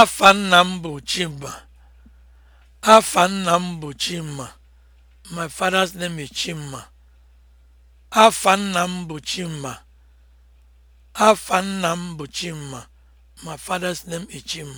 Afa nna m bụ Chima. Afa nna m bụ Chima. My father's name is Chima. Afa nna m bụ Chima. Afa nna m bụ Chima. My father's name is Chima.